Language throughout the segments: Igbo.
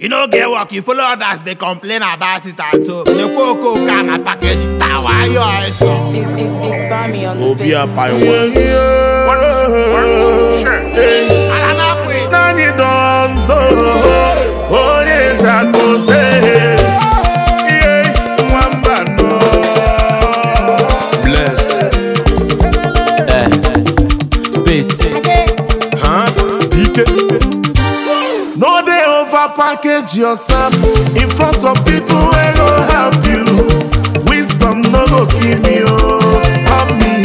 You no get work, you follow others, they complain about it at home. The cocoa can a package tower, your eyes on. It's, it's, it's on the Bless. Eh, space. package yourself in front of people wey go help you wisdom no go kill me oh. help me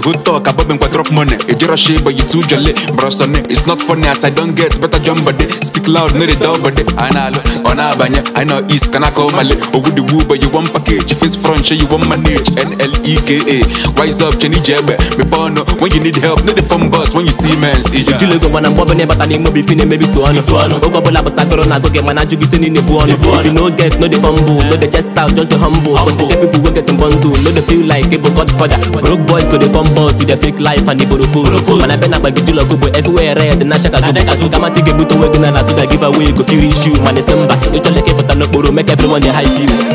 The whole talk about me quite rock money. E If a shit, but you too jolly, on it It's not funny as I don't get better jump body. Speak loud, no they but body. I know, on Abanya, I know East, can I call Mali? Oh, good but you want package. Face front, you want manage. N L E K A. Wise up, Chenny Jebbe. Me bono, when you need help, no the phone boss, when you see mens See, you look when I'm bobbing, but I need more maybe Go get the If you no get, no the fumble, eh. no the chest out, just the humble. people get in no the feel like it, eh, but Godfather. Broke boys go the fumble. boss dey fake life and iboroko mana bena gbagijula go but everywhere red na shaka zuka zuka ma ti ga-ebute onwe na na give away go feel issue mana isi mba ịchọleke ịpụta n'okporo make everyone dey hype you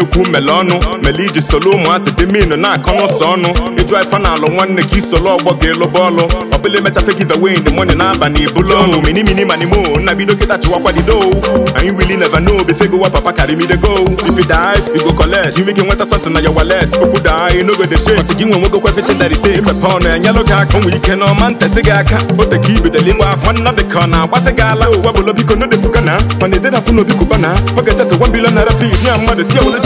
ekwu mele ọnụ mele iji solo ụmụasị dị minu na-akọ n'ụsọ ọnụ ịjụ ife na alụ nwanne gi solo ọgbọ ga-eloba ọlụ ọbụla emechafe give away the money na-aba na ibulu ọnụ mini mini mani mo nna bido kịta chịwakwadido anyị really never know be go wa papa carry go if you die you go nweta something na your wallet okwu daa no go dey shake ọsị gị nwe nwegokwa gị aka ike na gị aka o ya mmadụ si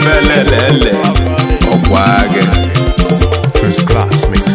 ifelelele ọkwa gị first class me